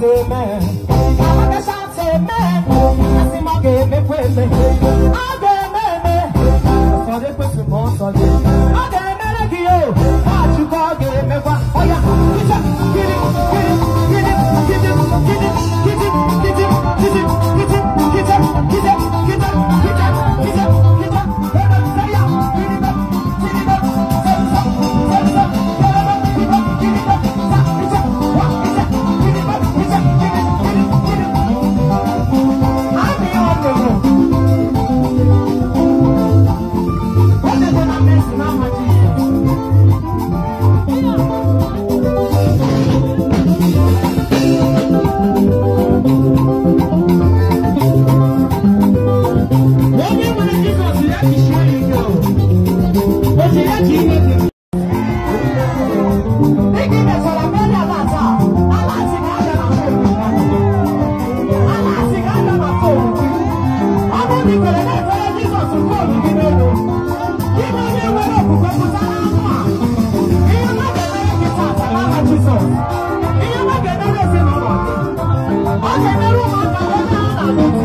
i kama ke shat seme, asima ke me kweze. Jesus. Ìyá bá kẹ̀kẹ́ lè ṣe mọ̀mọ́. Ó ṣe fẹ́ràn mọ́ta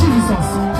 Jesus.